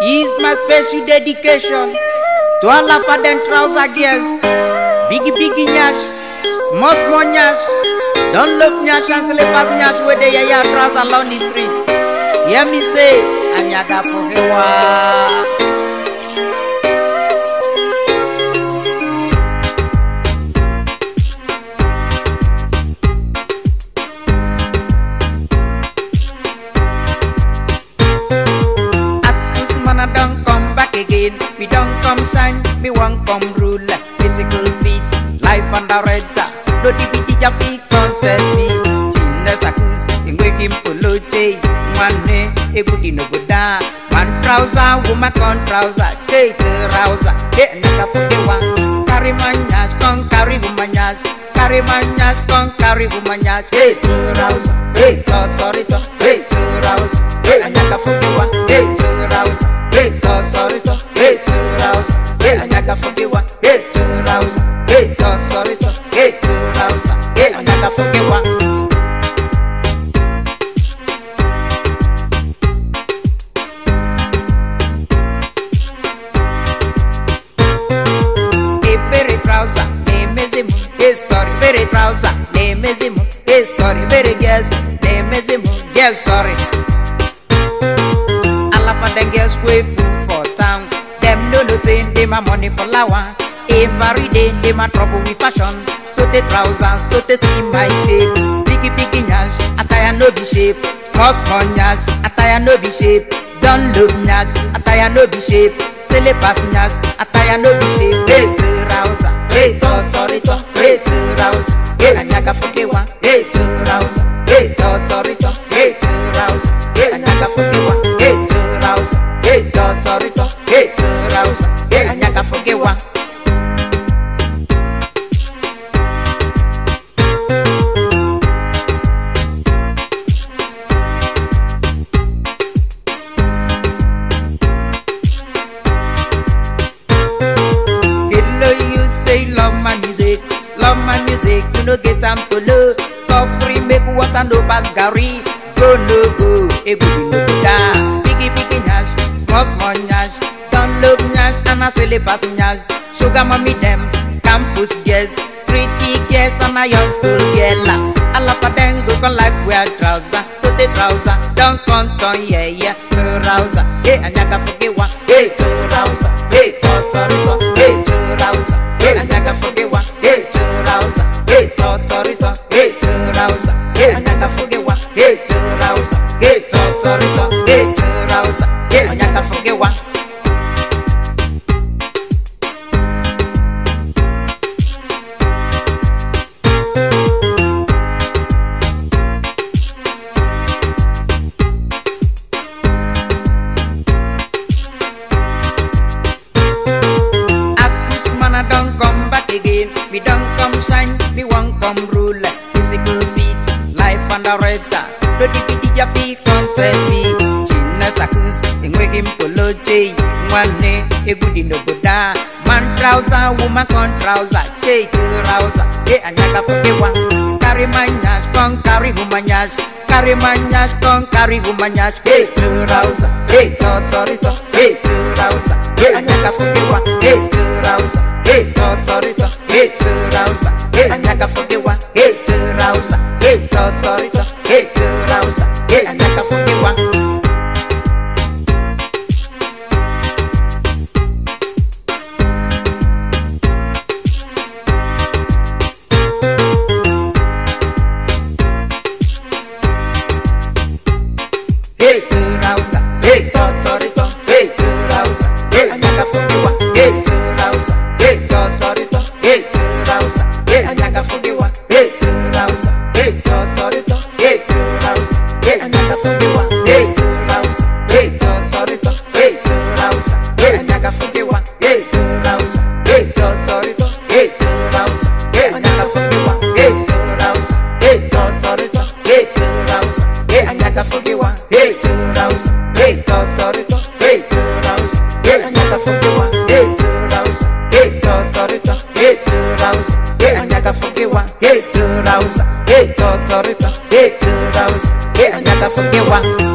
is my special dedication to all Afaden trouser girls. Biggie biggie nyash, small small nyash, don't look nyash and slippers nyash where they yaya trouser along the street. Hear me say, Anyaga Pokewa. Kong con rule physical fit life under reza di dibiti jafi contest me chinna sakus ingwekim poloche mane di no goda man trouser woman con trouser take trouser get naka pokewa kari manyas con carry manyas kari manyas con carry manyas take trouser take authority take trouser sorry very guess they miss him guess sorry alafa dem guess we full for town Them no know say they my money for lawa every day they my trouble with fashion so the trousers so they see my shape piggy piggy nyash attire no be shape cost for nyash attire no be shape don look nyash attire no be shape syllabus nyash attire no be shape hey trouser hey tortorito hey trouser. house yakanyakafukiwa Love my music, you know get am to love. Coffee make water no pass Gary. Go it go, be. freeway passengers, sugar mommy them, campus girls, streety girls and a young school girl. A lot of them go con like wear trouser, so they trouser, don't come on, yeah, yeah, trouser. Hey, and I forget one, hey, trouser, hey, tortorito, hey, hey, and forget one, hey, trouser, hey, tortorito, hey, hey, and forget one, hey, trouser, hey, tortorito, hey, hey, and forget one. kakaretsa lodikidi ja bikontresi china sakus engwegimpolojei ngwane egudinoboda mantrausa woman contrausa ketrausa e anyaka fokewa kari manyas kon kari humanyas kari manyas kon kari humanyas ketrausa ketotorito ketrausa e anyaka fokewa Hey, to Rausa, hey, anaka one. hey, two rounds, hey, totorito, hey, two rounds, hey, anyaga funky one, hey, two rounds, hey, totorito, hey, two rounds, hey, anyaga funky one, hey, two rounds, hey, totorito, hey, two rounds, hey, anyaga funky one.